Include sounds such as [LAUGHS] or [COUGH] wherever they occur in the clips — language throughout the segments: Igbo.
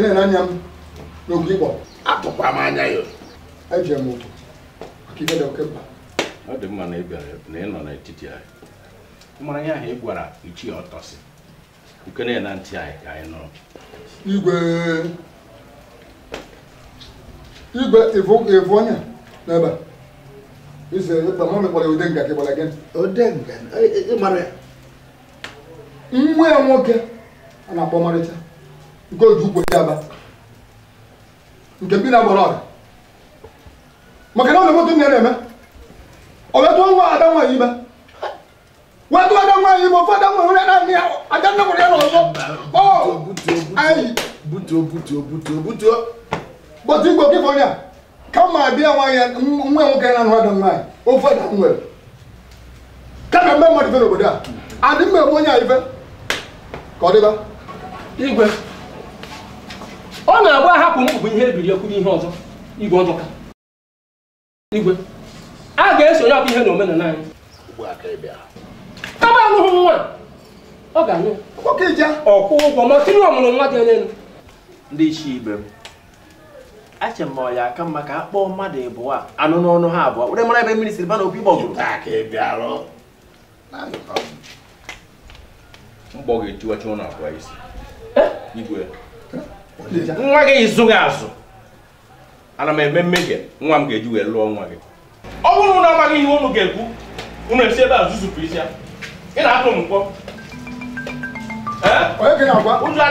na anya m m anya ya ejere m ụkwụ maka dị oke mkpa ọ dị mma na ị bịara na ị nọ n'etiti anyị mara ya ahụ ị gwara ọtọsị na ntị anyị ka anyị nụrụ igwe igwe ịvụ n'ebe ọ nwa ya nwoke na-akpọ nke o ji ukwu ya aba nke bi na-agbara ọga maka na ọ na-emoto nne na-eme ọ wetụọ nwa ada nwaanyị ibe wetụ ada nwaanyị ibe ofe ada nwaanyị onye naanị ya ada nne nwere ya n'ọzọ anyị butuo butuo butuo butuo bọtụ igbo kịfọnya kama bịa nwaanyị nwa nwoke na-anụ ada nwaanyị ofe ada nwere kama mgbe mmadụ ife n'obodo a adị mma egbu onye a ife ka ọ dịba igwe ọ na-agba ahapụ m bụ ihe ebiri ekwu ihe ọzọ igwe ọzọ ka igwe a ga-esonye ọkụ ihe na omenala anyị kama anụghị nwa ọ ga-anyụ ọkwụ ụgwọ ma tinye ọmụrụ nwa dị onye elu ndị isi ibe m ache m ọya aka mma ka a kpọọ mmadụ ịbụọ anụ n'ọnụ ha abụọ were mara ebe mmiri siri ba na opi gbọgụrụ mgbọ ga-etiwacha ụlọ abụọ isi e? igwe nwa gị zụghị azụ ana m eme mmehie nwa m ga-eji wee lụọ nwa gị ọ bụrụ na amaghị ihe unu ga-ekwu unu esi ebe a zuzupụ isi ya ị na-atụ m mkpọ ụjọ na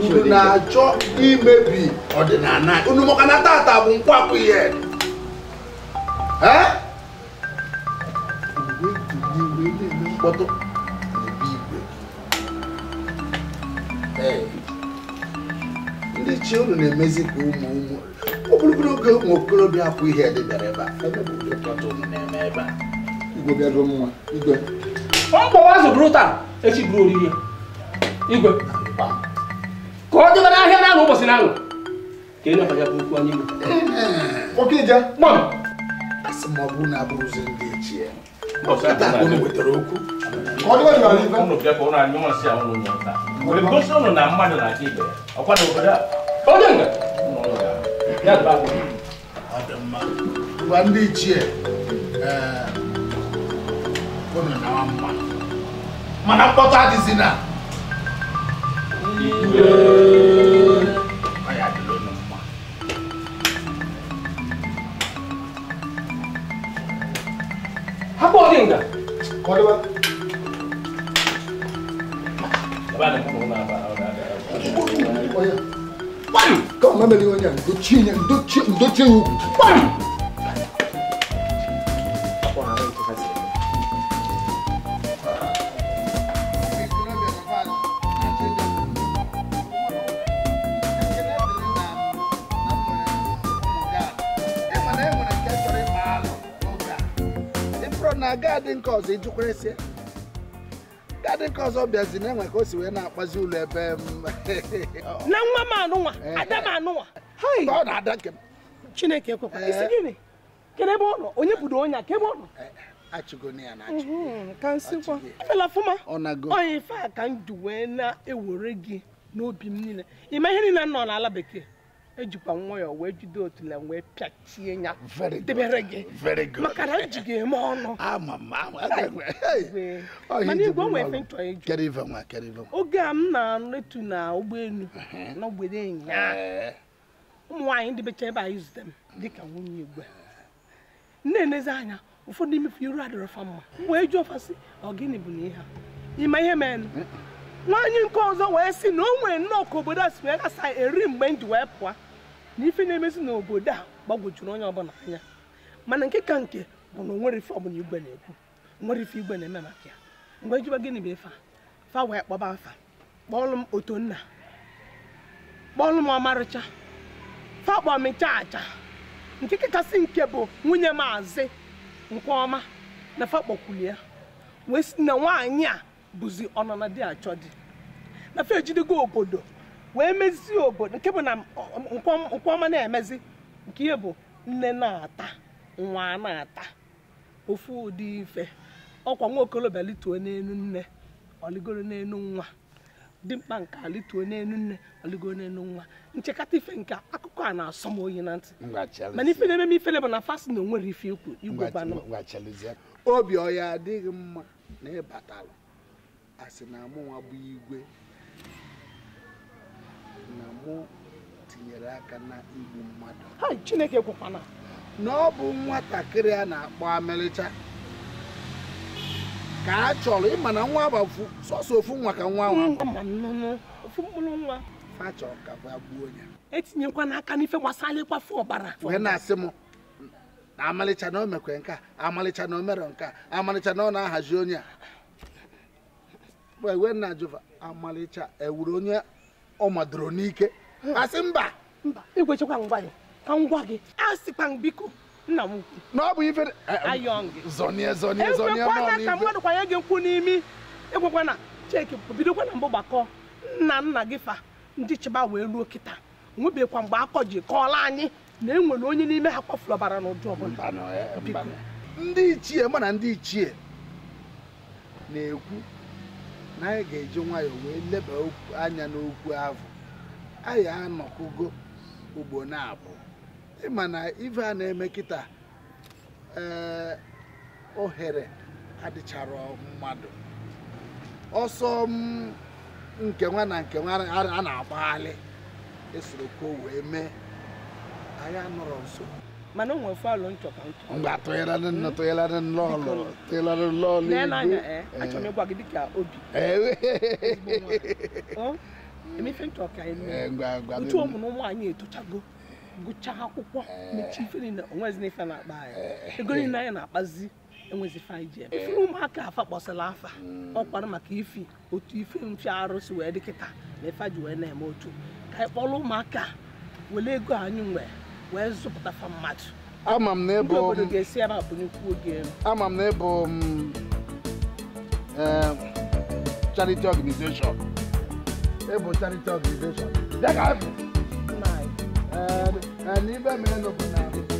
unu na-achọ imebi ọdịnala unu maka na tata bụ nkwapụ ihe ndị chi unu na-emezi ka ụmụ ụmụ oge ụmụ okorobịa apụ ihe dị bịara ebe a mkpọwa azụ bụrụ taa echi bụrụ oriri ya igwe ka ọ dịba n'ahịa na-aṅụ ụbọchị na-aṅụ ka enye ya bụ okwu anyị ndị ichie eh, gómìnà náà wà mú wa mana kpọta dị si na igwe ọ ya dịrị unu mma hapụ ọdị nga kọdịba Kau mana dia ni? Doci ni, doci, doci. Bang! ọzọ iju ọzọ bịazi na-enwe ka o si wee na-akpazi ụlọ ebe mm, [LAUGHS] na nwa m anụnwa eh. ada m anụnwa ọ na-ada nke m chineke ekwekwa eh. isi gịnị kedu ebe ọ nọ onye bụdo onye ka ebe ọ nọ a ka wee na-ewere gị n'obi m niile ịma ihe niile nọ n'ala bekee ejikwa nwayọọ wee jide otule wee pịachie ya debere gị maka na eji gị eme ọnụ [LAUGHS] ah, ah, ah, oh, mana igwe onwe efe nchọ eju oge a m na-etu na ụgbọelu uh-huh. n'ogbede ụnyaahụ eh. ụmụ nwaanyị ndị becha ebe anyị zute m dịka nwunye igwe na-enezi anya ụfọdụ imefu iru adịrọ fa mma wee jụọ fasị ọ gịnị bụ na ihe a ịma ihe mere nwaanyị nke ọzọ wee sị na o nwere nnọọ ka obodo a si wee gasa eri mgbe m ji wee pụọ na ife na-emezi n'obodo a gbagwojuru onye ọbụla anya mana nke ka nke bụ na onwere ife ọbụla igwe na-ekwu nwere ife igwe na-eme maka ya mgbe ejiba gịnị bụ ife fa wee kpọba afa kpọọlụ m otonna kpọọlụ m ọmarịcha fa kpọọ m nchaacha nke kachasị nke bụ nwunye maazị nke ọma na fa kpọkwuli ya wee si na nwaanyị a bụzi ọnọ na di achọ di na fa ejidego obodo wee mezie obodo nke bụ na nkwọma na-emezi nke ihe bụ nne na-ata nwa na-ata ofu ụdị ife ọkwa nwa okolobịa lituo n'elu nne ọligoro n'elu nwa dimkpa nke alituo n'elu nne ọligoro n'elu nwa nchekata ife nke akụkọ a na-asọ m oyi na ntị mana ife na-eme m ifele bụ na fasi na onwere ife ikwu igwe obi ọya adịghị mma na ịbatara asị na mụnwa bụ igwe na mụ tinyere aka na igbu mmadụ chineke gwụkwana na ọ bụ nwatakịrị a na-akpọ amelịcha ka a chọrọ ịma na nwa bụ sọsọ ofu nwa ka nwa nwa fachọrọ ka ba gbuo ya etinyekwana aka n'ife gbasara ịkwafu ọbara wee na-asị m na amalịcha na o mekwe nke a amalịcha na o mere nke a amalịcha na ọ na-ahazi onye a wee na jụva amalịcha ewuru onye ọ madoro n'ike asị mba mba ikwechekwa ngwa gị ka ngwa gị a sịkwa m biko nna m ukwu na ọ bụ ife zọnie zọnie zọnie ma ọ mmadụ kwanye gị nkwụ n'imi ekwekwa na cheki bidokwa na mbụ gbakọ nna nna gị fa ndị chịba wee ruo kịta nwebekwa mgbe akọ ji kọọla anyị na enwere onye n'ime ha kpọfụrụ ọbara n'ụdị ọbụla eh, ndị ichie mana ndị ichie na-ekwu na ga-eji nwayọọ wee leba anya n'okwu ahụ anyị anọkụgo ugbo na-abụ ịma na ife a na-eme kịta ee eh, ohere adịchara mmadụ ọsọ nke nwa na nke nwa a na-agbaghalị esoro ka wee mee anyị anọrọ nso mana eh, eh. [LAUGHS] oh, eh, onwe fọlụ nchọka nchọ mgbe atụgharị nnọọ tụgharị nnọọ tụgharị nnọọ n'elu achọ m ịgwa gị dịka obi ee emefe nchọ ka ntu ụmụ mm. na ụmụ anyị etochago gụchaa akwụkwọ mechie ife niile onwezi n'ife na-akpa anyị ego niile anyị na-akpazi enwezi anyị ji eme ifere ụmụaka afa kpọsịla afa ọkwara maka ifi otu ife mfe arụsị wee dịkịta na ife ji wee na-eme otu ka e anyị kpọrọ ụmụaka were ego anyị nwere wee zụpụtafa mmadụ ama m na ịbụ obodo ga-esi ya na bụnyekwu oge ama m na ịbụ charity organization ịbụ charity organization dịka n'ime mere n'obodo na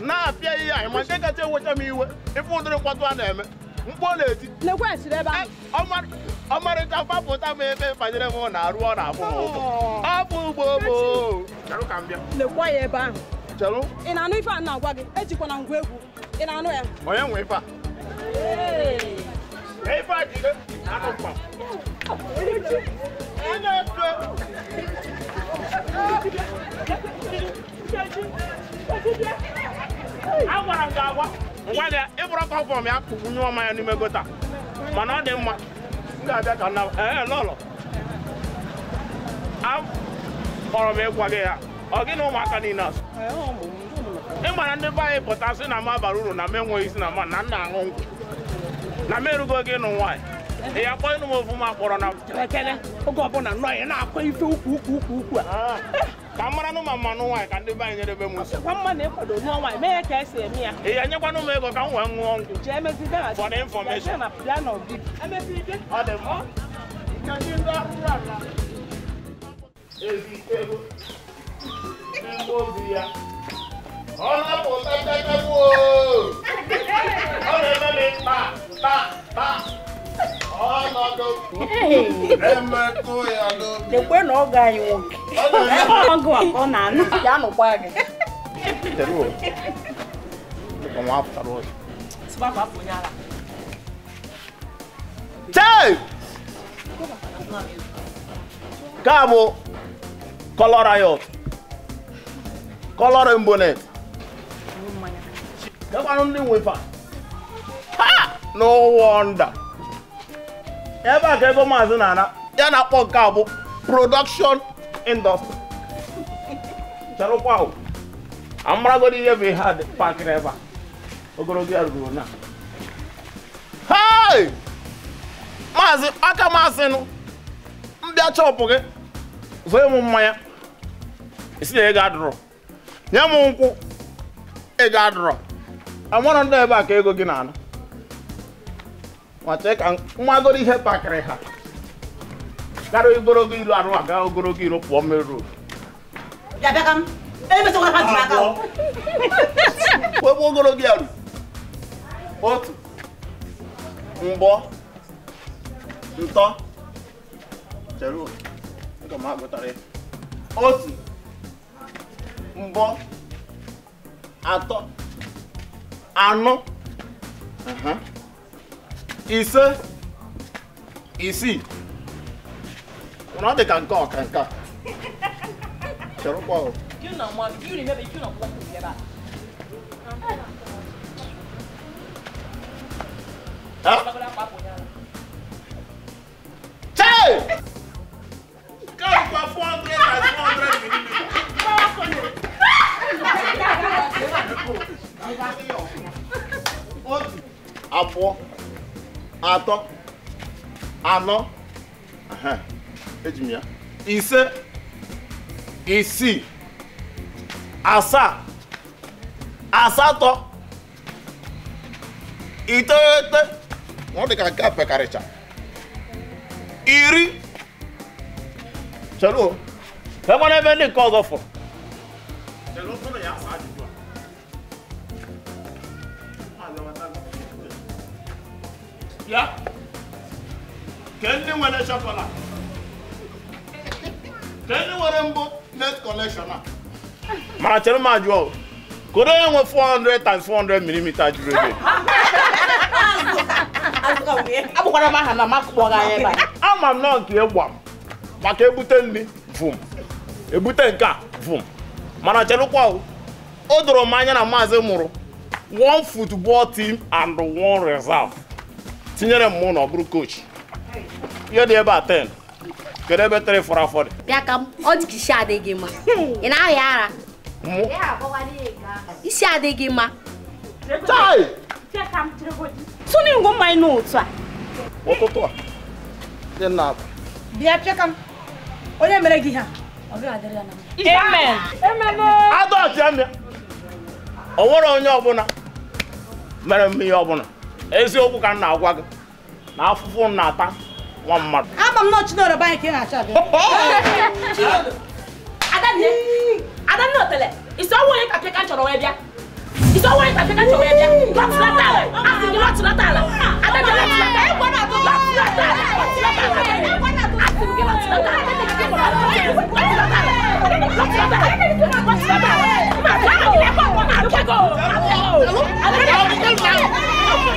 na-apịa ihe anyị ma nke kacha enwecha m iwe ife ụdịrị mkpọtụ a na-eme mkpu na-eti eh, ọmarịcha mgbapụta m ebe banyere m na arụ ọ na-abụ oh. ọ bụ ugbo ị na-anụ ife a na-agwa gị ejikwana ngwa egwu ị na-anụ ya onye nwe ife a agwara m agwa ịbụrụ ya kpụgbu n'ime gota mana ọ dị mma m ga-abịa ka ee m ịgwa ya ọ gị na ụmụaka niile ị mara ndị anyị pụta na m abara uru na isi na na nna aṅụ na kpọ na oge ọbụla nọ ya na-akwa ife ukwu ukwu ukwu a kamara no mama no wa ka de ba nyere be musu kwa mma na ekodo no wa me ka ese emi a e anya kwa no me go ka nwa nwo ngu je me fi da for information na plan of it e me fi de o de mo ka ji ndo ra ra e fi e go e mo bi ya ọ̀nà kò tẹ́tẹ́ tẹ́ wò ó ọ̀nà ẹ̀mẹ́lẹ́ pa. ekwe na ọ ga anyị nwoke ọgụ a ọ na-anụ ya nụkwa gị nke a bụ kọlọ rayọt kọlọ rembonet gakwanụ ndị nwefa ha n'ụwa nda ebe a ka ebe maazị na-ana ya na-akpọ nke a bụ production industry chọrọkwa amaragodi ihe bụ ihe a pakịrị ebe a ogologo ya ruru na hei maazị aka maazị mbịa chọpụ gị zụọ m mmanya isi na ego adụrụ nye m nkwụ ego adụrụ amarọ ndị ebe a ka ego gị na-anụ nwacheka mmagoro ihe kpakịrị ha gara ogologo ilu arụ aga ogologo ilu pụọ meru ebe ogologo ya ru otu mgbọ ntọ chere aga m agụtara ya otu mbọ atọ anọ ise isii na ọ dị ka nke ọka nke a chọrọkwa Chai! Come for 400 and 400 millimeters. Abụọ atọ anọ eji m ise isii asaa asatọ iteghete ọ dị ka nke a pekarịcha iri chere o enwere ebe ndị nke ọzọ fọrọ ya ke ndị nwere chokola ke ndị nwere mbụ net collection a mana chere m ajụọ koro ya nwe 400 times 400 mm juru ebe abụkwara m aha na makụkpọga anyị ebe ama m nọ nke ịgwa maka ebute nri vum ebute nka a vum mana chelụkwa o doro m anya na maazị mụrụ one football team and one reserve tinyere m mụ na ọ bụrụ kochi ihe dị ebe a 10 kedu ebe tere fọrọ afọ dị bịa ka ọ dị ka isi adịghị mma ị na-ahịa ara isi adịghị mma tụnụ ngwo mmanya n'otu a ụtụtụ a dị na akwa bịa pịa ka m onye mere gị ha adọtịa ọ nwere onye ọbụla mere m ihe ọbụla eziokwu ka m na-agwa gị na afụfụ na-ata nwa mmadụ ama m ka ị na-achọ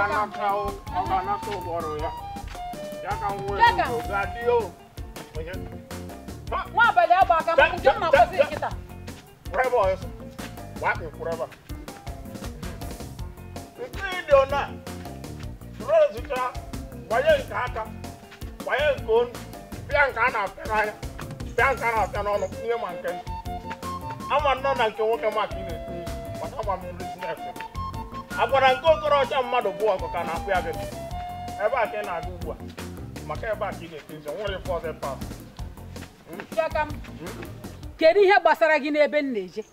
kana kau kana kau baru ya. Ya kau wewe gadio. Mau beli apa kamu? Jangan mau kasih kita. Berapa ya? Wapi berapa? Itu dia nak. Suruh kita bayar kata, bayar kun, biang kana kana, biang kana kana nak ni makan. Aman nona kau kau makin ni, macam mana ni nak? agwara nke okorocha mmadụ bụ ọgụ ka na-akpụ ya bebe ebe a ka ị na-aga ugbu a maka ebe a ka ị ga-ete nwere ife ọzọ pas kedu ihe gbasara gị n'ebe m na-eje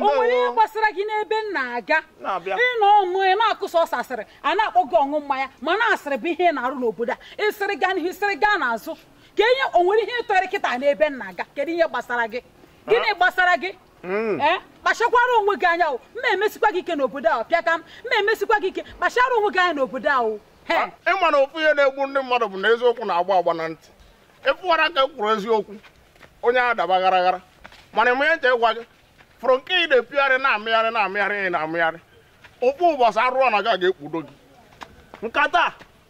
onwere ihe gbasara gị n'ebe m na-aga ịnọ ọṅụ ị na-akụsa ọsasịrị a na-akpọ gị ọṅụ mmanya ma na-asịrị bụ ihe ị na-arụ n'obodo a ịsịrị gaa n'ihu ịsịrị gaa n'azụ ka e ihe onwere ihe ịtọrị kịta n'ebe m na-aga kedu ihe gbasara gị gịnị gbasara gị Hmm. Eh, kpachakwara onwe gị anya mma emesikwa gị ike n'obodo ahụ pịa ka m mma emesikwa gị ike kpachara onwe gị anya n'obodo ahụ ịma na ofu ihe na-egbu ndị mmadụ bụ na eziokwu na-agba agba na ntị ịfụwara ka ekwuru eziokwu onye a daba garaghara mana ime nche ịgwa gị fụrụ nke ị na-epigharị na-amịgharị na-amịgharị ị na-amịgharị ụkpụ ụbọchị arụọ na gị a ga-ekpudo gị nkata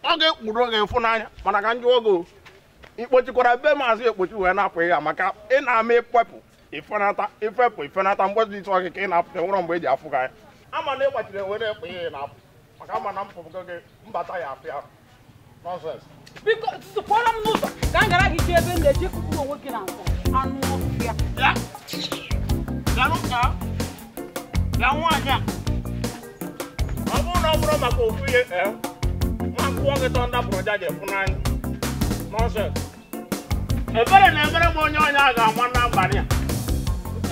ọ ga-ekpudo gị ịfụnanya mana ka njụ oge ikpochikwara be maazị ekpochi wee na-apụ ya maka ị na-ama ịkpepụ ifenata ifepụ ifenata mgbe ịtụ gị ị na-apụta nwere mgbe e ji afụ ya. ama na e ị nwere enwe na-ekpe ya na-apụ maka ama na mpụgo gị mbata ya afịa nọnsens biko sụpụrụ m n'ụzọ ka m gara gị ji ebe m na-eji kụkụ onwe gị na anụ ya. a ọ bụrụ na ọ bụrụ maka ofu ihe e, nwa gị ebere na-emere m onye ọnya a ga-ama na a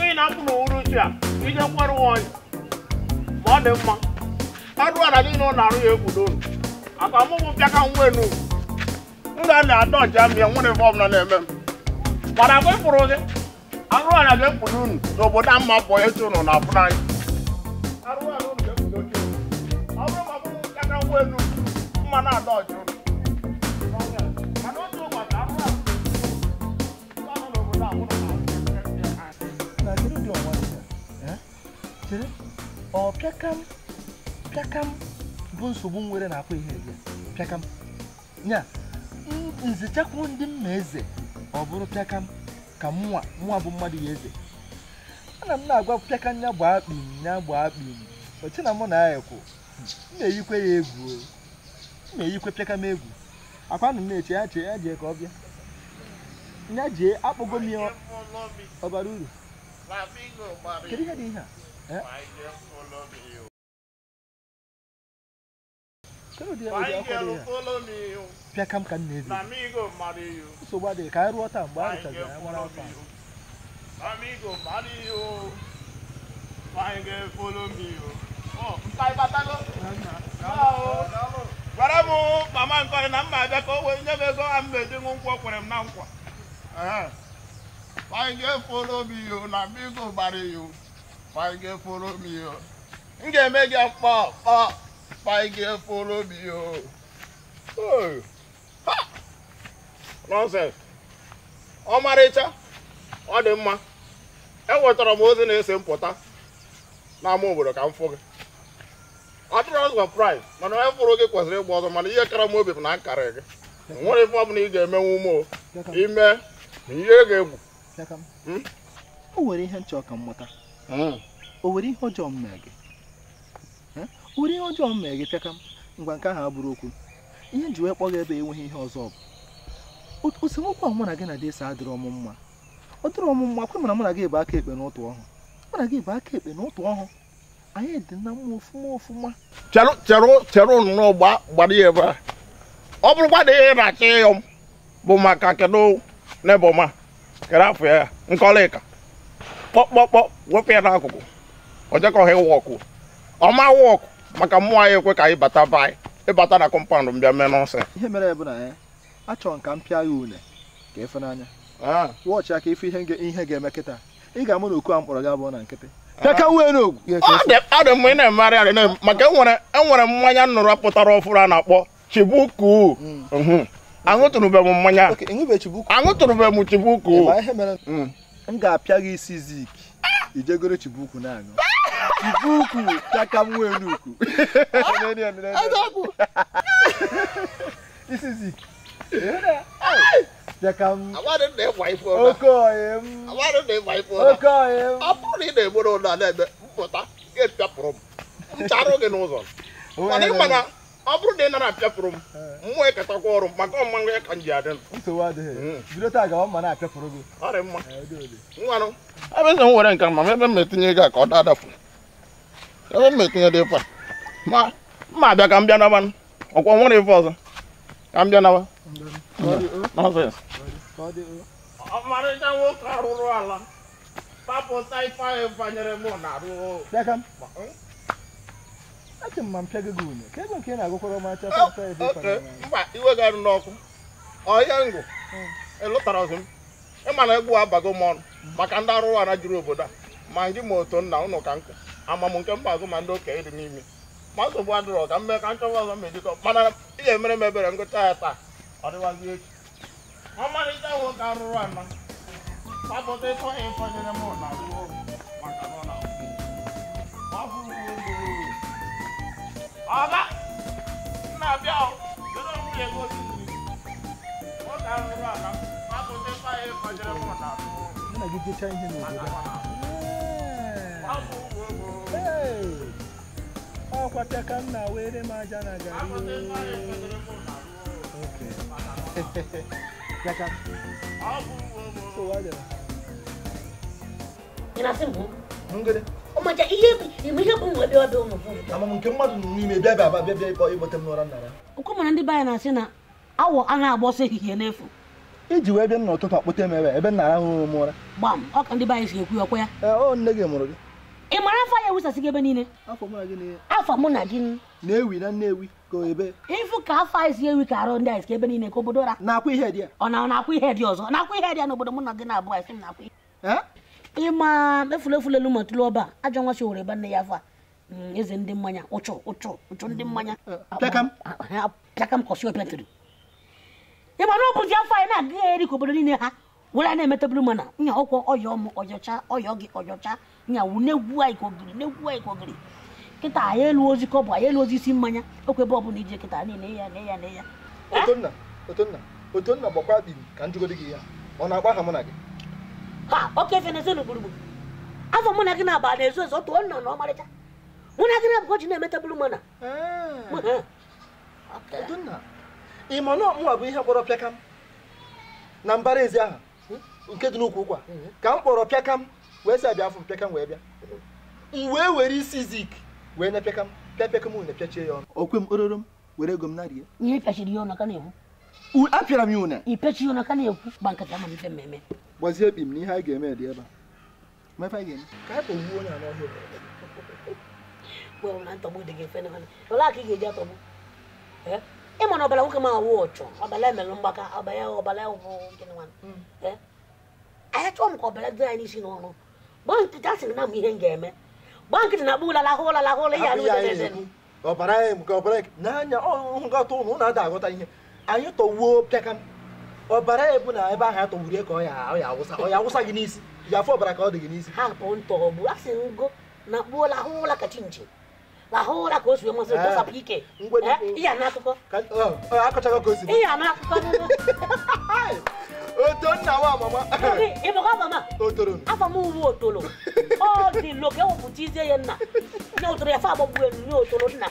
ị na-apụ n'uhuruchi a ije nkwarụ onye ma ọ dị mma ọrụ ala niile na arụ ya egwudo unu aka mụbụ bịa ka nwa enu nna na-ada ọja m ya nwere ife ọbụla na-eme m mana agwa ịpụrụ gị arụ ala ga-ekpudo unu n'obodo a mma bụ echi unu na-apụ n'anya arụ ala unu ga ọ bụrụ ma ọ bụrụ bịa ka nwa mma na-ada ọja chere ọ pịakam pịakam bụ nsogbu nwere na-akwa ihe eze pịakam ya nzichakwu ndị mma eze ọ bụrụ pịakam ka mụnwa nwa bụ mmadụ ya eze ana m na-agwa pịakam ya gbaa kpim ya gbaa kpim oche na mụ na-ayekwu m na-eyikwe ya egwu m na-eyikwe pịakam egwu akwa nụ m na-eche ya chee ya jee ka ọ bịa ya jee akpụgo m ya ọbara uru kedu ihe dị ihe a Eh? I kam ka m na-ebi. Nsogbu adịghị ka anyị rụọ taa mgbe a rụchara ya nwara afọ. m Ọ, Gwara m mama nkọrị na mma abịa ka o wee nye m ego a m ṅụ nkwụ kwere m na nkwa. Five years na paige follow me o m ga-eme gị akpọ kpọ paige follow me o nonsense ọmarịcha ọ dị mma e enwetara m ozi na-ese mpụta n'ama obodo ka m fụ gị atụrụ ọzọ praịz mana onye fụrụ gị kwesịrị ịgba ọzọ mana ihe kara m obi bụ na akarị gị nwere ife ọbụla ị ga-emenwu eme o ime na ihe ga-egwu hmm? o nwere ihe nchọ ka mmụta o nwere ihe ọjọọ m mee gị o nwere ihe ọjọọ m mee gị pịaka m ngwa nke ahụ abụrụ okwu ihe ji wee kpọ gị ebe enweghị ihe ọzọ bụ osemokwu ahụ mụ na gị na desa adịrị ọmụ mma ọ dịrị ọmụ mma kwe mana mụ na gị ebe aka ekpe n'ụtụ ọhụ mụ na gị ebe aka ekpe n'ụtụ ọhụ anyị dị na mma ofuma ofuma chere nnọọ gbara ya ebe a ọ bụrụkwa na ihe na ịyọ m bụ maka kedụ ọma kere afọ ya nke ọlaịka kpọkpọkpọ wepụ ya n'akụkụ ọjekọha ịwọkụ ọma wọkụ maka mmụọ anyị ekwe ka anyị bata be anyị ịbata na kọmpandụ m bịa mee n'ọsọ ihe mere ya bụ na eh, achọrọ m ka m pịa ya une ka efe n'anya wọchị aka ife ihe ga-eme kịta ị ga-amụ na oku a mkpọrọ gị abụọ na nkịtị dị mma ị na-emegharị arị maka enwere e mmanya nnụrụ pụtara ọfụrụ a na-akpọ chibuku hmm. aṅụtụrụbe m mmanya aṅụtụrụbe m chibuku m ga-apịa gị isi zik ijegoro chibukwu na-aṅụ chibukwu pịaka m n'ukwu isi zik ị na-egboro ụlọ na-eme mpụta ga-epịapụrụ m gị n'ụzọ mana ọ bụrụ na ị nara apịafụrụ m mmụọ ịkatakwa e ọrụ maka ọmụma ya ka m ji adị abịazi m hmm. ma ebe m etinye ego a ka ọ ebe m etinye dị ịfa ma mma abịa ka m bịa nabanụ ọkwa nwere ife ọzọ ka m bịa naba nọsens ọmarịcha nwoke arụrụ ala papụta ife ahụ m na arụ achọ m ma m pịago gị unyo ka ego nke ị na-agụkwara m acha iwe ga arụ n'ọkụ ọhịa ngụ ịlụtara hmm. ọzọ m ịma na egbu abago m ọnụ maka ndị arụrụ ara juru obodo a ma ndị ma otu nna ụnụ ka nkụ ama m nke mba agụ ma ndị okenye dị n'ime ma nsogbu adịrọ ka m mee ka nchọba ọzọ m ejikọ mana ị emere m ebere ngụcha ya taa ọ dịwazi echi ọmarịcha nwoke arụrụ ana gbapụta ịtọ ya ịfọnyere m na maka na ọ ọba nna abịa kedu nwunye gị otu nwoke ahụ rụrụ aka mapụta ife anyị kọjere m na nna gị jecha ihe n'obodo ọ kwata ka m na-were m aja na gari Yaka. So, why did I? You know, simple. I'm good. ọmaja ihe ihe bụ nwe bịa bịa ụmụ nke mmadụ nọ n'ime bịa bịa bịa bịa ịkpọ ịkpọte m n'ụra nara. ndị be na-asị na awọ a na-agba ehihie n'efu iji wee bịa n'ụtụtụ m ebe ebe m ụra gbam ọ ndị be anyị si ekwu ọkwa ya nne gị mụrụ gị ị mara afọ ya ewusasị gị ebe niile afọ mụ na gị na-ewi na ka arụ ndị anyị na-akwụ ihe dị ya ọ na-akwụ ihe dị ọzọ na-akwụ ihe dị ya n'obodo mụ na gị na-abụ anyị ịma efulefu lelu ma tụlụ ọba ajọ nwa shi were ebe nne ya afa mm, eze ndị mmanya ụchụ ụchụ ụchụ ndị mmanya pịakam ah, ah, ah, kọsi opetiri ịma na ọbụzi afọ anyị na-aga ya eri ka obodo niile ha were na-emetabụrụ mana nya ọkwọ ọya ọmụ ọjọcha ọya gị ọjọcha nya wu na-egwu anyị ka ogiri na-egwu anyị ka ogiri kịta anyị elu ozi ka ọ bụ anyị elu ozi isi mmanya okwu ebe ọbụla ije kịta niile ya na ya na ya otonna otonna otonna gbakwa bi ka njụgodi gị ya ọ na-agba mụ na gị ha oke venezelu gburugburu afọ mụ na gị na-aba na-ezu ezu otu nnọọ na ọmarịcha mụ na gị na abụkọ ji na-emeta bụrụ mana ị ma na ọmụwa bụ ihe kpọrọ pịakam na mbara ezi ahụ hmm? nke dị n'ukwu ụkwa hmm. ka m kpọrọ pịakam wee si abịa afọ m pịakam wee bịa m wee were isi zik wee na pịakam pịa pịakam na pịachie ya ọnụ okwe m ororo m were ego m narie ihe pịachiri ya ọnụ aka na-ekwu apịara m ya une i pechiri ọnụ aka na-ekwu gba nkata ma mfe mmemme gbazie ebi m na ihe anyị ga-eme dị ebe a ma ga ka anyị onye ị ga ịma na ọbara nwoke m awụ ọchọ ọbara mgbaka ọbara hmm. chọọ m ka ọbara dị anyị n'isi n'ọrụ gbaa na m ihe ga-eme gbaa nkịtị na-akpụ ihe ọbara ọbara ọhụrụ ọbara ebu na ebe ahụ atọgburu ya ka ọ ya awụsa ọ ya awụsa gị n'isi ya afọ ọbara ka ọ dị gị n'isi hapụ ntọgbụ asị ngo na kpuola ahụ ụra ka chinchi ahụ ụra ka o si nwe eh, dọsapụ ike eh, ihe na akụkọ akọchago ka o si ihe na akụkọ oto nna wa mama ịbụkwa mama otoro afọ m uwe otoro ọ dị loke wepụta izie ya nna nye otoro ya fa agbagbuelu nye otoro nna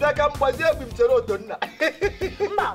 dịka mgbazie ebi m chere oto nna mba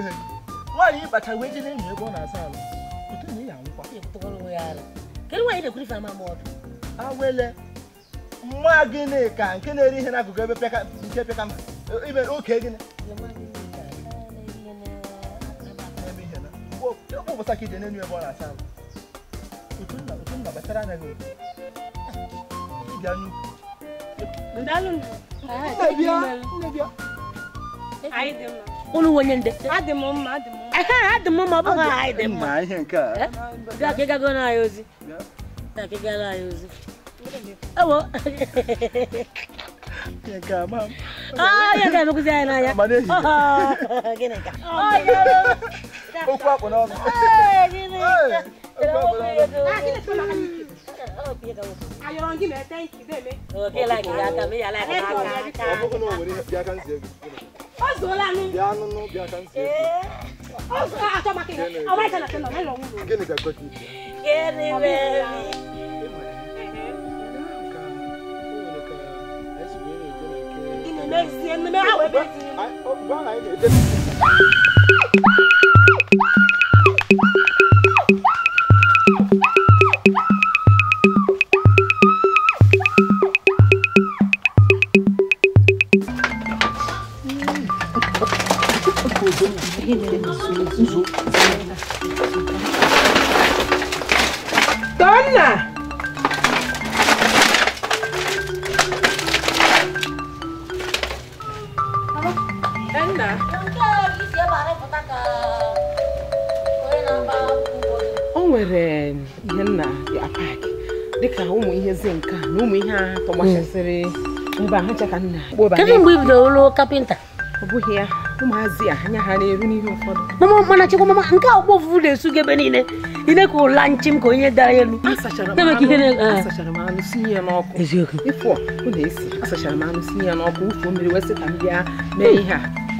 Nwanyị ha nwaanyị ịkpacha wee na ebe ọ na-asa ala otu na ya kedu nwaanyị na-ekwuri fe ama awele mma gịnị ka nke na-eri ihe n'akụkụ ebe nke pịaka ime oke gịnị ebe ọ na-asa ala otu nna anya gị unu wenye ndị adị adị m mma ọ bụghị anyị dị mma bịa ka ịgago na anyị ozi bịa anyị ozi ewo ga anyị n'anya okwu akpụ n'ọnụ okay ka wasu ayoron gi me thank you me okay like ya ka me ya like ka ka obu ko no wori ya kan se ozola nu ya nu nu ya kan se eh ozo a to make o wa kana tena me lo wu gini ka ko ti gini me gini me zie me awe be ti ba na ide zo tonna o nwere ihe nna ya pak dịka ụmụ ihe zi nka na ụmụ ihe agha tọgbachasịrị mba ha chaka nna kedụ mgbe ibidoro lụọ kapịnta ọ bụghị ya ụmụazị a anya ha na n'ihe ụfọdụ mama mana chekwa nke a ụgbọ ofufu na-esu gị ebe niile ile ka ụla nchi m ka onye dara elu asachara ah. m anụ asachara m anụ sinye ihe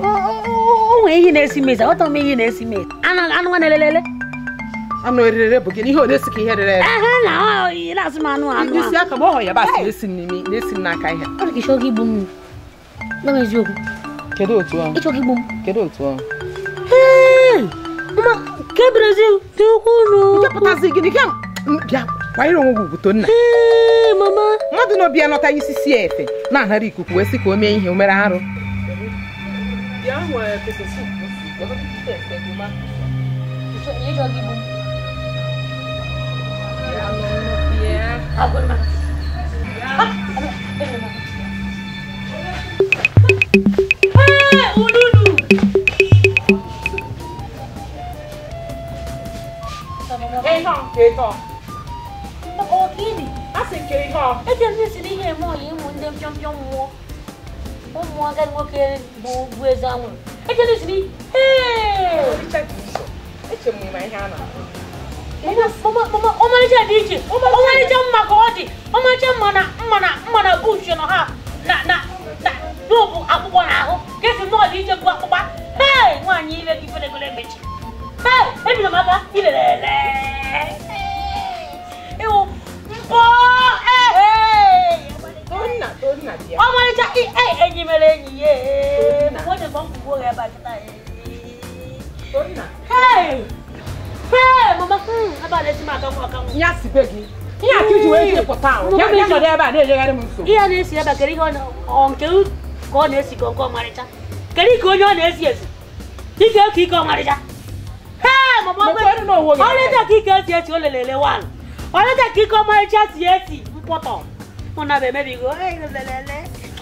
o ihe na-esi mezi aghọtara m ihe na-esi mezi na-elelele anụ erere bụ gị ka ihe rere ere ehe na asị m anụ anụ isi aka ọ na-esi n'aka ihe ọ dị ka igbu Kedu otu ahụ? Ịchọ gị gbom. Kedu otu ahụ? Hei! nke Brazil dị ukwuu. Nchepụtazi gịnị ka bịa kwanyere onwe gị ugwuto nna. Hei mama. Mmadụ na ọbịa nọta isi sie efe na-ahara ikuku wee sị ka o mee ihe o mere arụ. Keiko. dị iche. Ọmarịcha mma ka ọ dị. Ọmarịcha mma na mma na mma na bush nọ ha na na nta n'ụbụ akpụkpọ n'ahụ ka esi mọọlụ ije bụ akpụkpa hei nwaanyị ile gị felegolo emechi hei ebido m aka ilelele ịwụ mkpọ ehe ọmarịcha enyi mere enyi ya onye bụ mkpụgbo ebe a kịta hei hei mama ebe a na-esi m akanwụ akanwụ ya sibe gị ihe a ka iji wee jepụta ahụ ya nọdụ ebe a na-ejegharị m nsogbu ihe na-esi ebe kedu ihe nke ka ọ na-esi ka nke ọmarịcha kedu ka onye ọ na-esi esi ike ka ike ọmarịcha ọlịta ka ike esi esi o lelele wan ọlịta ka ike ọmarịcha si esi mkpọtọ mụ na lele.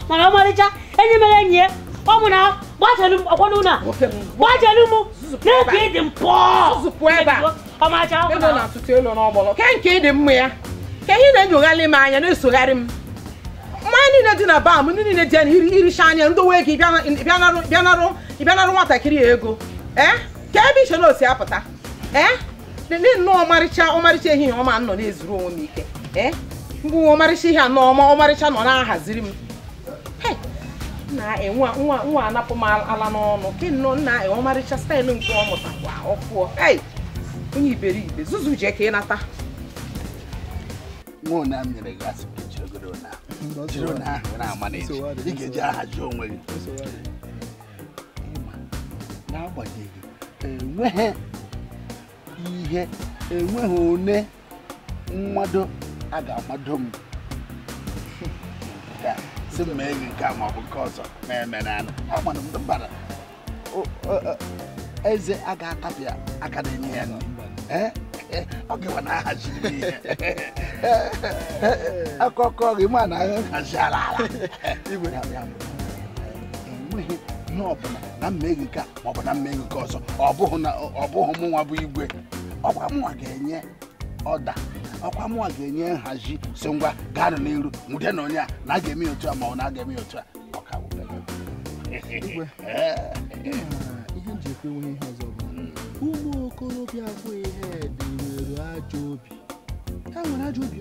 mana ọmarịcha enyi mere enyi ya ọ mụ na gbajelu m ọkwọnụ na gbajelu m n'ebe ịdị mpọ ọmarịcha ọkụ na nke ịdị mma ya ka ihe na-enyogharị m anya na-esogharị m mmanya niile dị na baa ndị niile dị anya na iricha anya ndowe gị bịanarụ nwatakịrị ego ee eh? ka ebe iche na osi apụta ee eh? dị nnọọ ọmarịcha ọmarịcha ehihie ọma nọ na-ezuru onwe m ike ee eh? mgbe ọmarịcha ihe anọ ọma ọmarịcha nọ na-ahaziri m na-enwe nwa anapụ m ala n'ọnụ ke nnọọ nna e, ọmarịcha staịlụ nke ọ mụtakwa ọfụọ onye iberibe zuzu jee ka ị nata nwa ụna nyere gị asị ka jiri ogoro ụna jiri ụna ahụ na-ama na ị ga-eji aha ji onwe gị ịma n'agbanyeghị enweghị ihe enweghị one mmadụ a ga-amado m si m mee gị nke a ma ọ bụ nke ọzọ na-eme n'ala agbara m mbara eze a ga-atapịa aka na-enye ya nri ọ gịwa na ahaziri ihe akụkọ gị ma na anyị ala ala enweghị na ọbụla na mmeghị nke a maọbụ na mmeghị nke ọzọ ọ bụghị mụ nwa bụ igwe ọkwa mụnwa ga-enye ọda ọkwa mụnwa ga-enye nhazi so ngwa gaanụ n'iru nwude na onye a na a ga-eme otu a ma ọ na aga eme otu a ọka ihe m ji ekwe enweghị ihe okorobịa abụghị ihe dị e nwere ajọ obi ha e nwere ajọ obi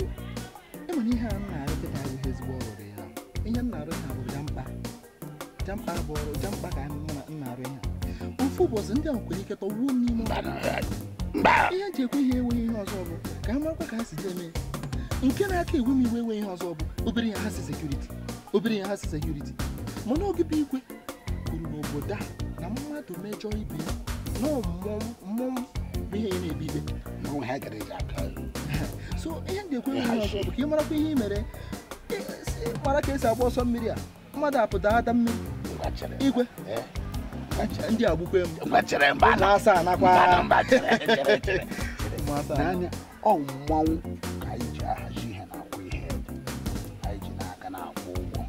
enwere ihe a m na-arụpụta ihe ezigbo ọrụ ya ihe m na-arụ ha bụ jampa jampa bụ ọrụ jampa ka nna arụ ha ofu ụbọchị ndị ahụ kwere ike wuo m n'ime ihe eji ekwe ihe enweghị ihe ọzọ bụ ka a marakwa ka ha si eme nke na-aka ewe m iwe enweghị ihe ọzọ bụ obere ya ha si sekuriti obere ya ha si sekuriti mana ogibe igwe kwuru obodo a na mmadụ mejọ ibe ya na mmụọ bụ ihe na-ebibe na nwa ha gara eji aka so ihe m ga-ekwe ihe ọzọ bụ ka ị marakwa ihe i mere mara ka esi agba ọsọ mmiri a mmadụ apụta ada mmiri igwe ndị a gbukwe m na-asa anakwa n'anya ọ mmanwụ ka anyị ji ahazi ihe na-akwụ ihe anyị ji n'aka na-akwụ ụgwọ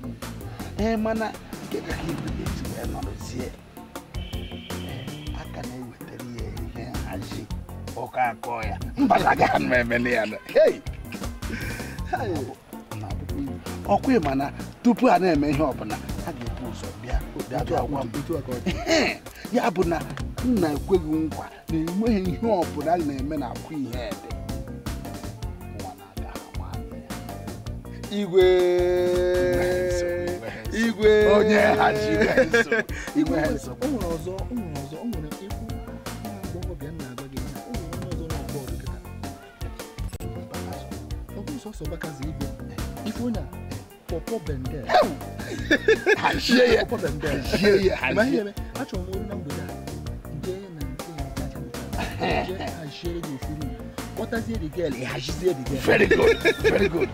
ee mana nke ka ibe ga-esi wee nọrọzie ka akpọ ya mbalaga ọkwa ịma na tupu a na-eme ihe ọbụla a ga-ebu ụzọ bịa ya bụ na nna ekweghị nkwa na enweghị ihe ọbụla a na-eme na akwa ihe ede igwe onye ha ji sọsọ baka zi ibe ifuna pọpọ bende hajie ya pọpọ bende hajie ya hajie ma ihe me achọ m olu na mgbede nje na nke ya kacha mụta nje hajie ya ofiri kpọtazie the girl hajizie the girl very good very good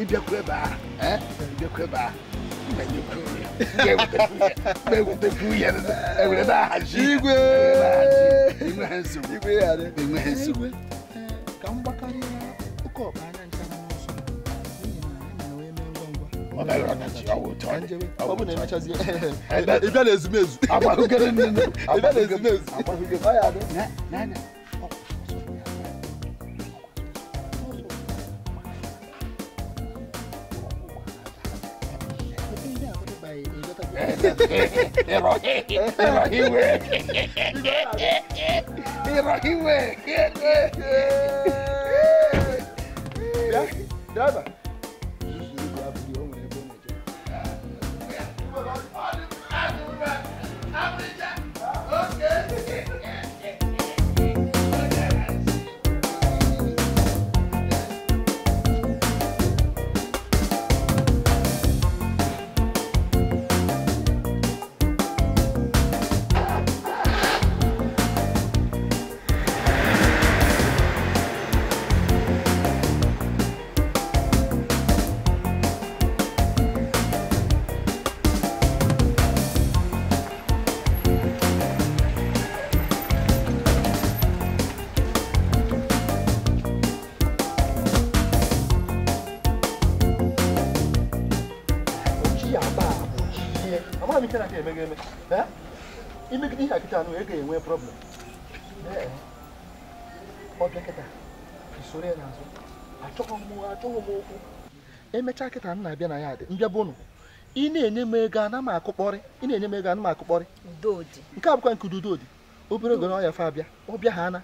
ịbịakwa ebe a ịbịakwa ebe a na-ewetekwu ihe enwere na-ahaji igwe enweghị nsogbu ka m gbakarịa oke ọkpa anya ncha n'ụzọ n'ihi na anyị na wee mee ngwa ngwa ọ bụ na emechazie ịbịa na ezumezu ịbịa na ezumezu ọ ya adị n'anya They're all here. They're all here. look like he went. Yeah, yeah, yeah. yeah. dọkịta nụ ị ga-enwe problem ọ bịa kịta isoro ya n'azụ achọghị m m okwu emechaa kịta m na-abịa na ya dị mbịa bụ ụnụ ị na-enye m ego ana m akụkpọrị ị na-enye m ego ana m akụkpọrị nke a bụkwa nke ududodi obere oge na ọya fa abịa ọbịa ha ana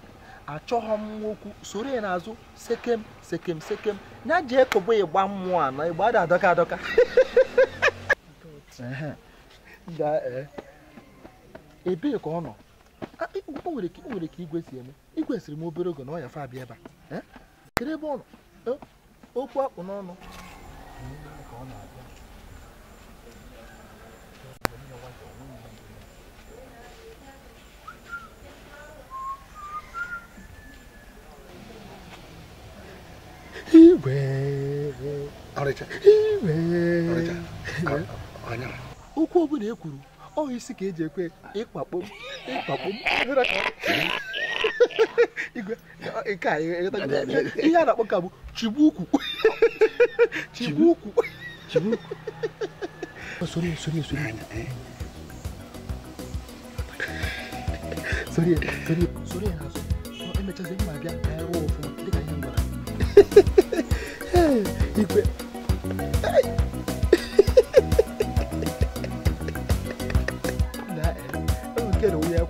achọghọ m okwu soro ya n'azụ sekem sekem sekem ya ji ekobo ịgba mmụọ na ịgba dị adọka adọka ebee ka ọ nọ o nwere ka igwe si eme igwe siri m obere oge na ọ yafe fa abịa ebe a kedu ebe ọ nọ e, okwu akpụ n'ọnụ okwu ọ ekwuru. ọ isi ka eji ekwe ịkwakpo ịkwakpo nke a ihe a na-akpọ ka bụ chigbu ukwu chigbu ukwu sori sori sori sori sori sori ya n'azụ emechazi mma bịa ka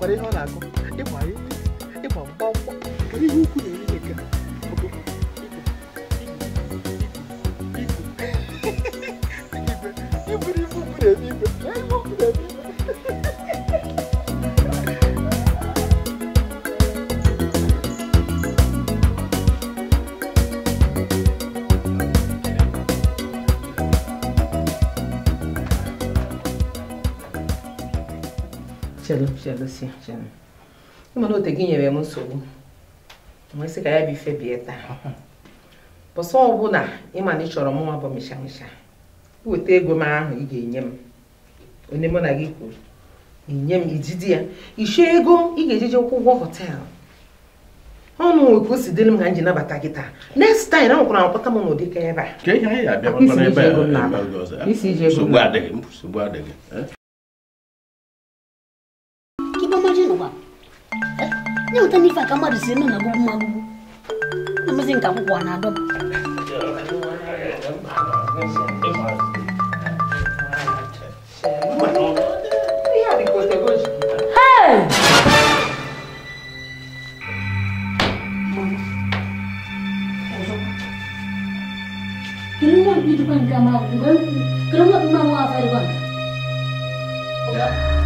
我哋可能一位一黃幫幫嗰啲烏龜。chelu chelusi chelu ịma na ote gị nyere m nsogbu nwesị ka ya bụ ife bie taa bụsọ ọbụla ịma na ị chọrọ mụnwa bụ mịshamịsha weta ego m ahụ ị ga-enye m onye mụ na gị kwuru inye m ijidi ya ego ị ga-ejeje kwụ ụgwọ họteelụ ọnụ nwoke o si nabata gị taa next m n'ụdị m na-aba yangitanifa kamari zenu nakubu makubu namazengakukwana doba Kerana itu não kamu, kerana kamu apa nada kamu?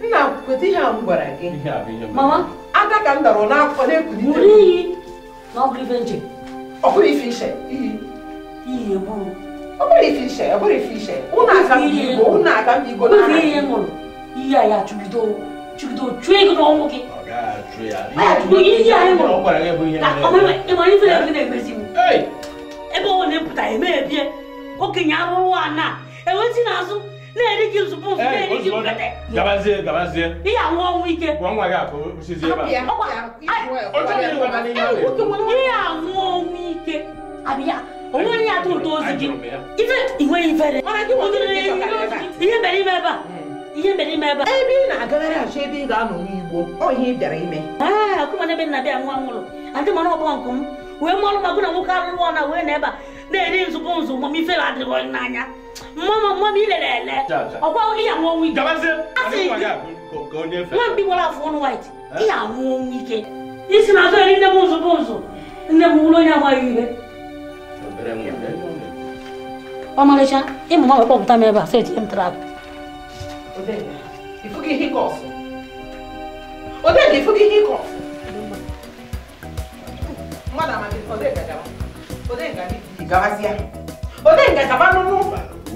nna kweta ihe a m gwara gị mama ada ka m dara n'afọ na-ekwuli buru iyi na ọgụ ife nche ọbụrụ ife iche iyi iyi egburu ọbụrụ ife iche ọbụrụ ife iche ụnụ aka m igbo ụnụ aka m igbo na ihe ihe ṅụrụ iyi a ya chụgido chụgido chụọ ego n'ọnwụ gị iyi anyị ṅụrụ ịmara ife na-eme na-emezi ebe ọ na-epụta eme ebie okenye arụrụ ana enwezi n'azụ na-eri gị ozugbo ozugbo na-eri gị mkpete gabazie gabazie ihe anwụ ọnwụ ike nwa gị akụ ebe a ihe anwụ ọnwụ ike abịa onweghị ya atụ ụtọ ozi gị ife inwe ifere ihe mere ime ah, ebe a ihe mere ime ebe a ebe ị na-agagharị achọ ebe ị ga-anọ n'igbo ọ ị bịara ime akụmana ebe nna bịa nwa nwụrụ adị mara ọgbọ m wee mụọrụ magụ na nwoke alụrụ ọ na wee na ebe a na-eri nzukọ nzu ma ife adịghị onye n'anya mama ilere ele ọkwa ihe anwụ ọnwụ ike nwa mgbe gbara afọ ọnụ white eh? ihe anwụ ọnwụ ike isi na azụ nne m ụzụ bụ m bụrụ onye agbaghị ihe ọmarịcha ịmụ ma wekpọpụta m ebe a seti m trap Odega,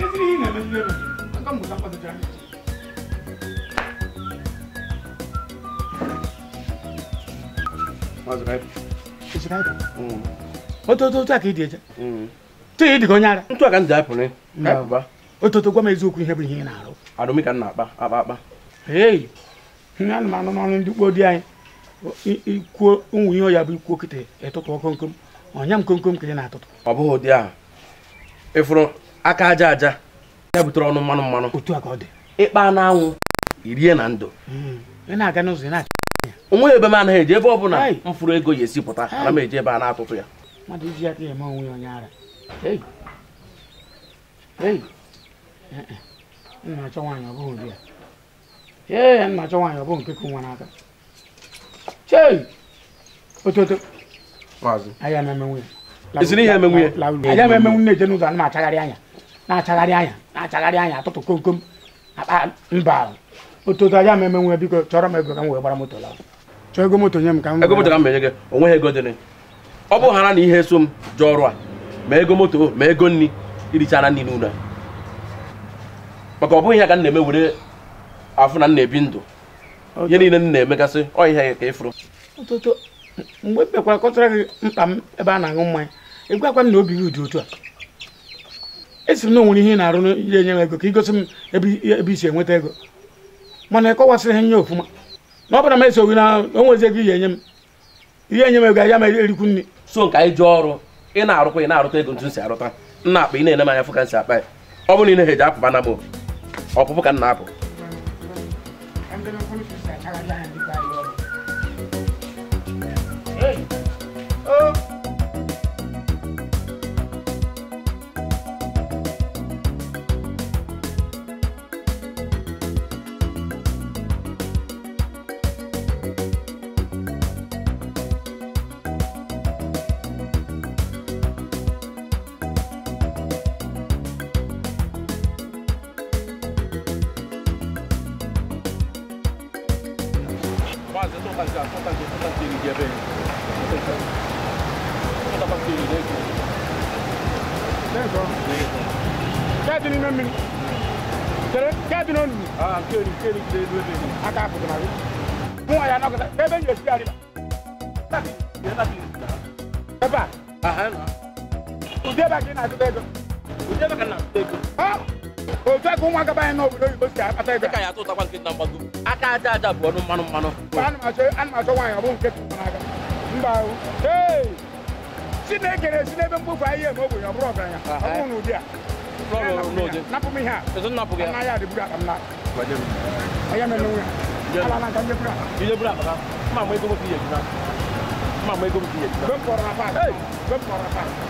gì này. Ezi ihe na-eme nne m aka mmụta mkpazụcha ototo a ka ị dị eje tụghị ịdịga onye ara ntụ a ka m ji apụrụ ototo gwa m eziokwu ihe bụ ihe ị na-arụ arụmịka na akpa akpa akpa ei ihe ana m anụ n'ọrụ ndị kpo di anyị ikwuo ụmụ ihe ọya bụ ikwu okete ịtụtụ ọkụ nkom ọnya m komkom ka ị na-atụtụ ọ bụghị ụdị ahụ ịfụrụ aka aja aja ya butere ọnụ mmanụ mmanụ ịkpa na anwụ irie na ndụ hmm. onweghị ebe m anaghị eji ebe ọ bụla m fụrụ ego ya esi pụta ana m eji ebe a na-atụtụ ya eh, eh. eziri ihe emenwu ya eje n'ụzọ ana m achagharị anya na-achagharị anya na-achagharị anya atụtụ kom kom akpa mba otutu ya ma eme nwe biko chọrọ m ego ka m wee gbara moto laa chọọ ego moto nye m ka m ego moto ka m menye gị onweghị ego dịrị ọ bụ hara na ihe so m ji ọrụ a ma ego moto ma ego nri irichara nri n'ụlọ maka ọ bụghị ihe ka m na-eme were afụ na m ebi ndụ ihe niile m na-emegasị ọ ihe ka ịfụrụ mgbe m kpekwara kọtara gị mkpa m ebe a na-aṅụ mmanya ị gwakwa m na obi gị dị otu a esi na onwere ihe na-arụ ya enye m ego ka ị gosi m ebe isi enweta ego mana ịkọwasịrị ha nye ofụma na ọ bụla m esoghi na onwezi ego ihe enye m ihe enye m ego ya ma erikwu nri so nke anyị ji ọrụ ị na-arụkwa ị na-arụta ego ntu si arụta nna akpa ị na-ene m anya fụ ka nsi akpa ya ọ bụrụ na ị na-eji na m ọpụpụ ka m na-apụ bază tot așa, tot așa, tot așa de righe, bine. Tot așa. Tot așa de righe. D'accord. Cadine même min. Tere, cadine on. Ah, keri, keri de de de. Aka ko na. Mo aya na ko da. Bebe ni esi ari ba. Taki, ye na ti. Baba. Aha na. Uje ba kina ti de go. Uje ba kana ti de go. Ah o fẹ́ ko n wa kaba yẹn n'o bolo yìí o sigi a ta yẹn. e ka y'a to takwa kiri n'anba dun. a k'a da da bɔ ni manu manu. ba hali ma se hali ma se wa yɛrɛ a b'o kɛ tugu fana kan. n ba o ee sini kere sini bɛ n fɔ a ye mɔgɔ bonya bɔrɔ bɛ yan a b'o n'u di yan. bɔrɔ n'o di. napu mi yan. ɛsɛ napu yan. n'a y'a de bura kam a y'a mɛn n'o ala n'an ka ɲɛ i ye bura kaka n ma i komi k'i yɛlɛ n ma mɔ i komi k'i yɛlɛ n bɛ n kɔrɔ la pa.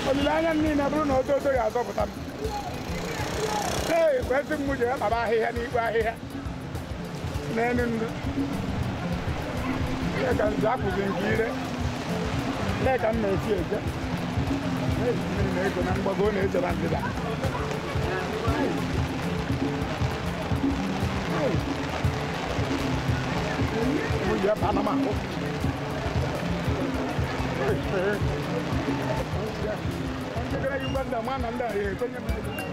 anh anh hey bây giờ bà đi, olileanya niile bụrụ na ododo ga-azọpụta m ee kwesị m ji akpaba ahịhịa n'ikpe ahịhịa n'elu ndụ ka nzu akụzi nke ire con ka m na-esi eje na-esi na ego na mgbago na-echeba ndịda Hey, hey. 내가 6만 남아 난다. 예, 그냥.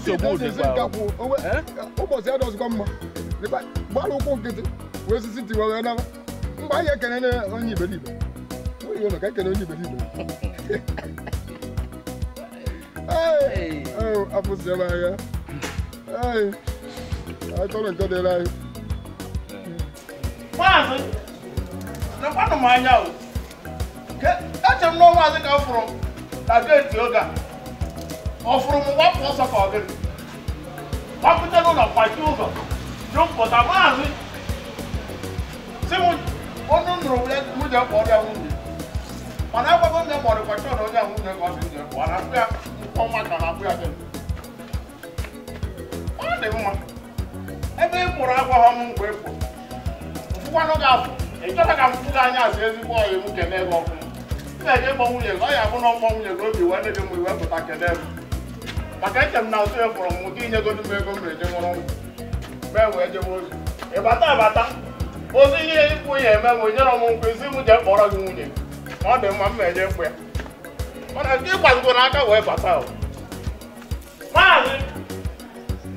nsogbu dịkwa ụbọchị ya dọzikwa mma gbara ụkwụ nkịtị wee sisi tiwa wee nara mgbe anyị ekene na onye iberibe nwere ụlọ ka ekene onye iberibe afụsiela ahịa akọrọ ọ fụrụ m gbapụ ọsọ ka ọ ụlọ gbapụta n'ụlọ kwachi ụzọ jụmpụta maazị si m ọnụ nụrụ nwunye kpọrọ ya nwunye mana agwago nne mọrị kwachi ọdọ onye nwunye ka ọ dị nje akpụ ya na-akpụ ya gịnị ọ dị mma ebe ị kpụrụ agwaghọ m mgbe ị kpụrụ mfụkwanụ ga-afụ ịchọta ka mfụ gị anya asị ezigbo ọyị m kene gị ọkụ m na-eje kpọ nwunye ya na ọkpọ nwunye obi wee gị mgbe pụta kene maka eche m na ụtụ ya fụrụ m ụdị inyegodu m ego m eje nwụrụ nkwụ mee wee jebe ozi ịbata abata ozi ihe ikwu ya eme m nyere m nkwụ isi m jee kpọrọ gị nwunye ọ dị mma m na-eje mkpụ ya mana nke ịgbazigo n'aka wee bata o maazị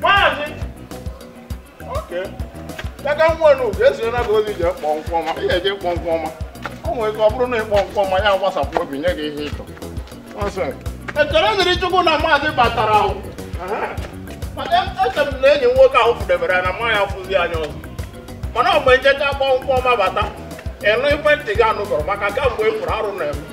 maazị oke aka nwa unu ga-esonyena gị ozi jee kpọọ nkwụ ọma ị ga-eje kpọọ nkwụ ọma ọ nwere ike ọ bụrụ na ịkpọ nkwụ ọma ya gbasapụ obi nye gị ihe ịchọ nọnsens echere dịrị chukwu na maazị batara eche e m na enyi nwoke ahụ fụdebere na mma ya fụzi anya ọzọ mana mgbe nchecha akpọ ọma bata ịnụ ikwentị gị anụgọrọ maka mgbe e kwuru arụ na-eme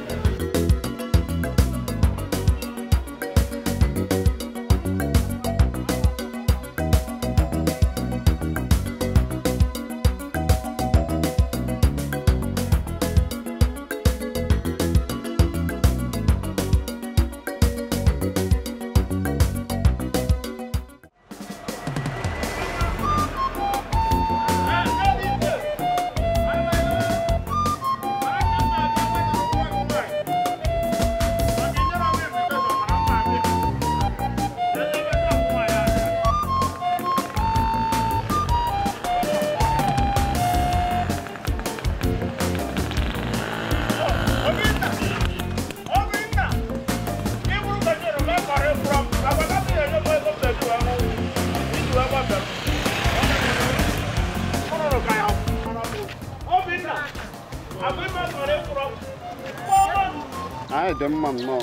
dị mma nnọọ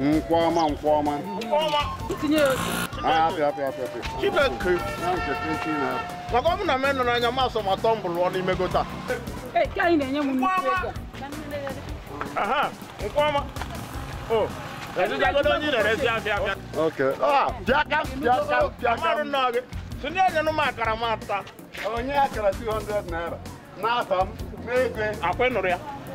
nkwọma nkwọma ah, maka ọ bụ na m nọ n'anya m asọ ma tọ mbụrụ ọ n'ime gota oh, onye ah, na m akara m ata onye akara 200 naira m n'ego nụrụ ya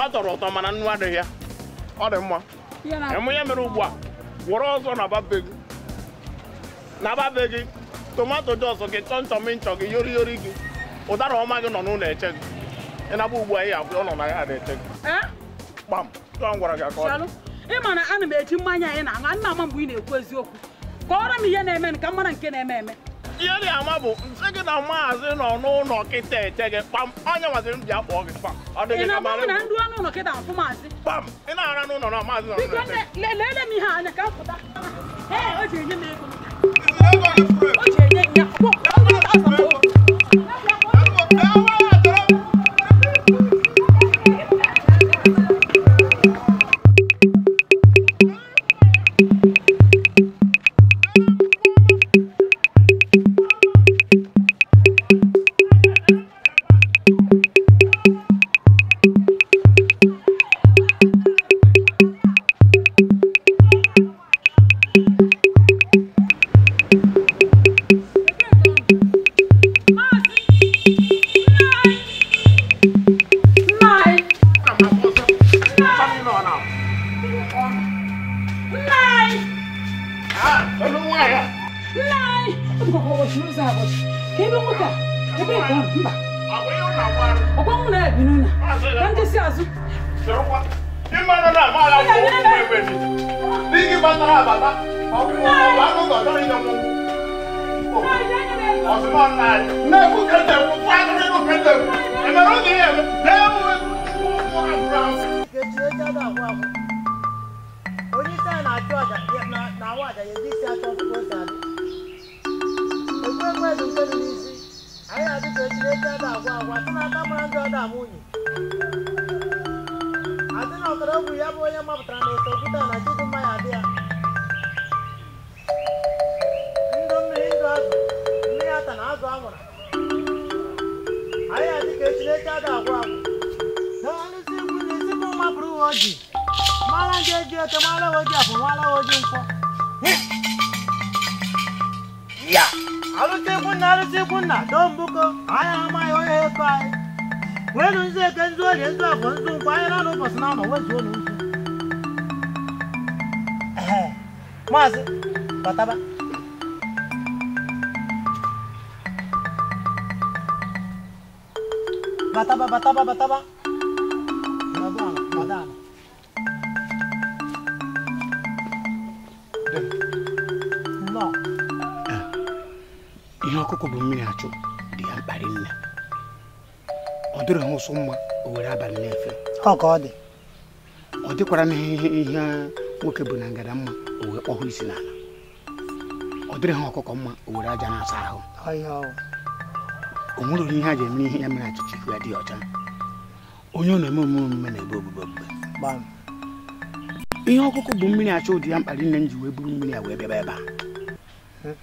ọ tọrọ ụtọ mana nnu adịghị ya ọ dị mma ịmụ ya mere ugbu a were ọzọ na babe gị tomato dị ọzọ gị chọnchọm nchọ gị yori yori gị ụdara ọma gị nọ n'ụlọ eche gị ịnaba ugbu a ihe abụọ nọ na ya ada eche gị kpam tụọ m gwara gị ka ọ dị ịma na a na m eji mmanya anyị na-aṅụ ana m ama mgbe ị na-ekwu eziokwu kọọrọ m ihe na-eme ka m mara nke na-eme eme ihe dị ama bụ nsị gị na maazị nọ n'ụlọ kịta eche gị kpam onye nwaziri m bịa kpọọ gị kpam ọ dịghị maazị kpam ị na-ara n'ụlọ na maazị nọ lele Mas, bata ba? Bata ba, bata ba, bata ba? Madana, No. Ihe ọkụkọ bụ mmiri achụ dị ya mkparị nne. Ọ dịrị ha ụsụ mma o were abalị na Ọ ka ọ dị. Ọ dịkwara n'ihe ihe nwoke bụ na ngada mma o wee kpọhụ isi n'ala ọ dịrị ha ọkụkọ mma o were aja na-asa ahụ o nwere ihe ha ji eme ihe ya mere achịcha ya dị ọcha onye ọ na-eme omume na-ebe ogbugbe ogbugbe ihe ọkụkụ bụ mmiri achọ ụdị ya mkpali nne m ji wee buru mmiri a wee bịaba ebe a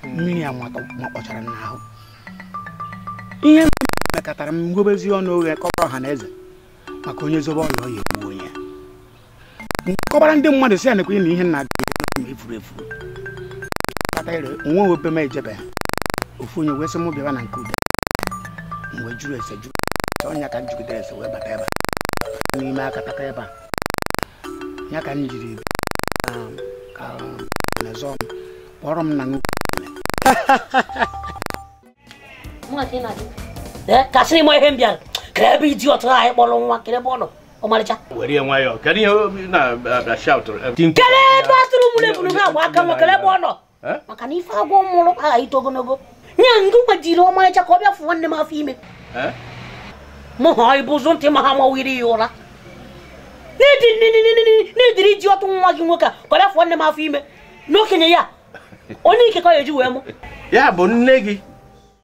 mmiri a makpọchara m n'ahụ ihe mekọtara m ngobezi ọnụ oghe kọrọ ọha na eze maka onye zobe ọla ọ ya egbuo kọbara ndị mmadụ si ya ị na ihe na gị e ma efuru efuru kpata ire onwe obe ejebe ofu onye wee sị m bịaba na nke ude mgbe jụrụ ese jụ ọnya ka m jigidere ese wee bata ebe n'ime aka taka ebe a ya ka m jiri um, um, m kpọrọ m na nkasịrị m ihe m bịara ka ebe anyị ọmarịcha were nwayọọ kedu ihe kedu na a tụrụ mụrụ ebunu agba aka nwa kele ebe ọ nọ maka na ife agwọ mụrụ aghaghị ito ogologo nye b'a gbajiri ọmarịcha ka ọ bịa fụ nwanne afọ ime mụ ha ịbụzụ ntị ma ha ụra n'ediri ji ọtụ gị nwoke a ka ọ bịa m afọ ime n'okenye ya onye ike ka ọ ya wee mụ ya bụ nne gị